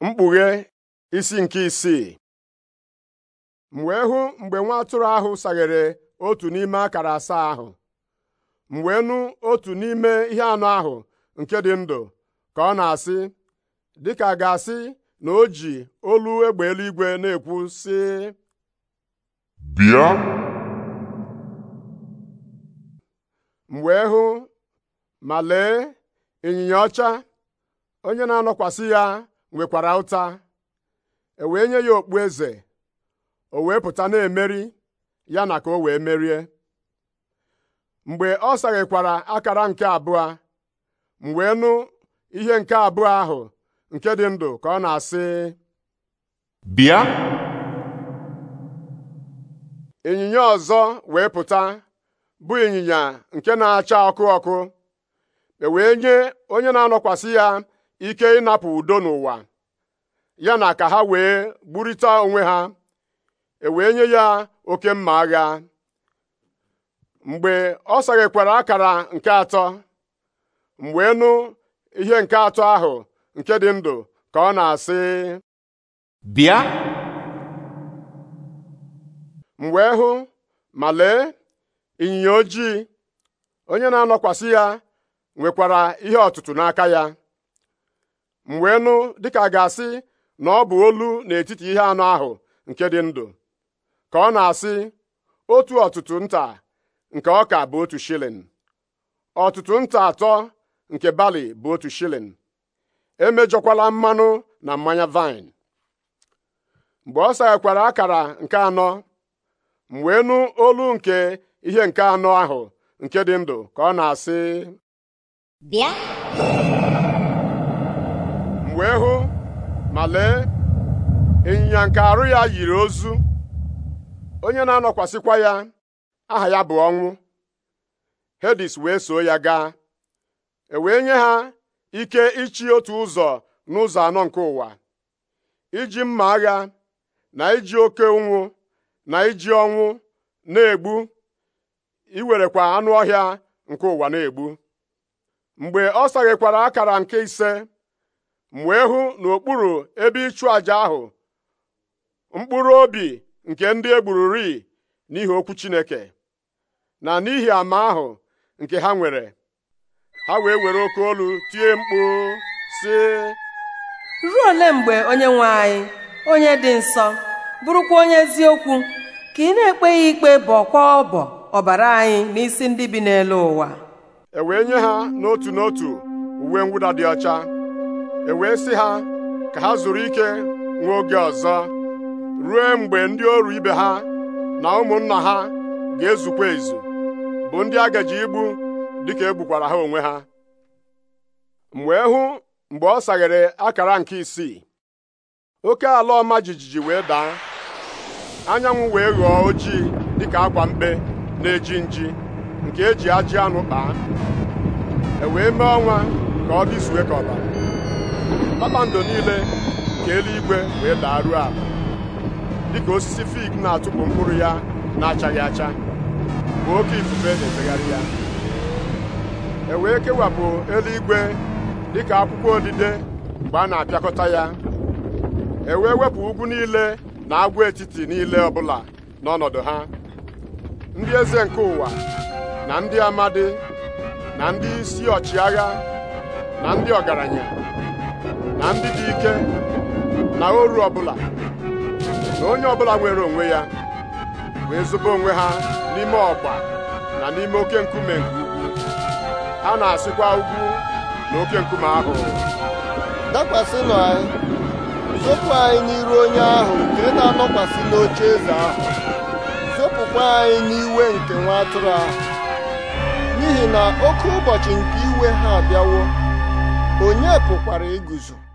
mkpughe isi nke isii m wee hụ mgbe nwa atụrụ ahụ saghere otu n'ime akara asaa ahụ m otu n'ime ihe anọ ahụ nke dị ndụ ka ọ na-asị dịka a ga-asị na o ji olu egbe eluigwe na-ekwu sị bịa m wee hụ ma lee ịnyịnya ọcha onye na-anọkwasị ya nwekwara ụta e wee nye ya okpu eze o wee pụta na-emeri ya na ka o wee merie mgbe ọ saghekwara akara nke abụọ m wee nụ ihe nke abụọ ahụ nke dị ndụ ka ọ na-asị bịa ịnyịnya ọzọ wee pụta bụ ịnyịnya nke na-acha ọkụ ọkụ e wee nye onye na-anọkwasị ya ike ịnapụ udo n'ụwa ya na ka ha wee gburita onwe ha e wee nye ya oke mma agha mgbe ọ saghekwara akara nke atọ mgbe wee nụ ihe nke atọ ahụ nke dị ndụ ka ọ na-asị bịa Mgbe wee hụ ma lee ịnyịnya ojii onye na-anọkwasị ya nwekwara ihe ọtụtụ n'aka ya m wee nụ dịka ga-asị na ọ bụ olu n'etiti ihe anọ ahụ nke dị ndụ ka ọ na-asị otu ọtụtụ nta nke ọka bụ otu shilin ọtụtụ nta atọ nke bali bụ otu shilin emejọkwala mmanụ na mmanya vine mgbe ọ saghekwara akara nke anọ m wee olu nke ihe nke anọ ahụ nke dị ndụ ka ọ na-asị bịa wee hụ ma lee ịnyịnya nke arụ ya yiri ozu onye na-anọkwasịkwa ya aha ya bụ ọnwụ hedis wee soo ya gaa e wee nye ha ike ịchị otu ụzọ n'ụzọ anọ nke ụwa iji mma agha na iji oke ụnwụ na iji ọnwụ na-egbu iwerekwa anụ ọhịa nke ụwa na-egbu mgbe ọ saghekwara akara nke ise m wee hụ n'okpuru ebe ịchụ àjà ahụ mkpụrụ obi nke ndị egbururi n'ihi okwu Chineke na n'ihi ama ahụ nke ha nwere ha wee were oke olu tie mkpu si ruo ole mgbe onye nwe anyị onye dị nsọ bụrụkwa onye eziokwu ka ị na ya ikpe bọkwa ọbọ ọbara anyị n'isi ndị bi n'elu ụwa e wee nye ha n'otu n'otu uwe mwụda dị ọcha e wee sị ha ka ha zuru ike nwa oge ọzọ ruo mgbe ndị ọrụ ibe ha na ụmụnna ha ga-ezukwa ezu bụ ndị agaji igbu dịka egbukwara ha onwe ha wee hụ mgbe ọ saghere akara nke isii oke ala ọma jijiji wee daa anyanwụ wee ghọọ ojii dịka akwa mkpe na-eji nji nke eji ajị anụ kpaa e wee mee ọnwa ka ọ dịzuwe ka ọbara kpakpando niile nke eluigwe wee daruo ala dịka osisi fig na-atụpụ mkpụrụ ya na-achaghị acha bụ oke ifufe na-efegharị ya e wee kewapụ eluigwe dịka akwụkwọ odide mgbe a na-apịakọta ya e wee wepụ ugwu niile na agwaetiti niile ọbụla n'ọnọdụ ha ndị eze nke ụwa na ndị amadi na ndị isi ọchịagha na ndị ọgaranya na ndị dị ike na oru ọbụla na onye ọbụla nwere onwe ya wee zụba onwe ha n'ime ọgba na n'ime oke nkume nke ugwu ha na-asịkwa ugwu na oke nkume ahụ dakwasịnụ anyị zopụ anyị n'iru onye ahụ nke na-anọkwasị n'oche eze ahụ zopụkwa anyị n'iwe nke nwa atụrụ ahụ n'ihi na oke ụbọchị nke iwe ha abịawo onye pụkwara iguzo